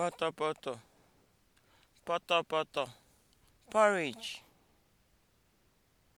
pọtọpọtọ potter, porridge.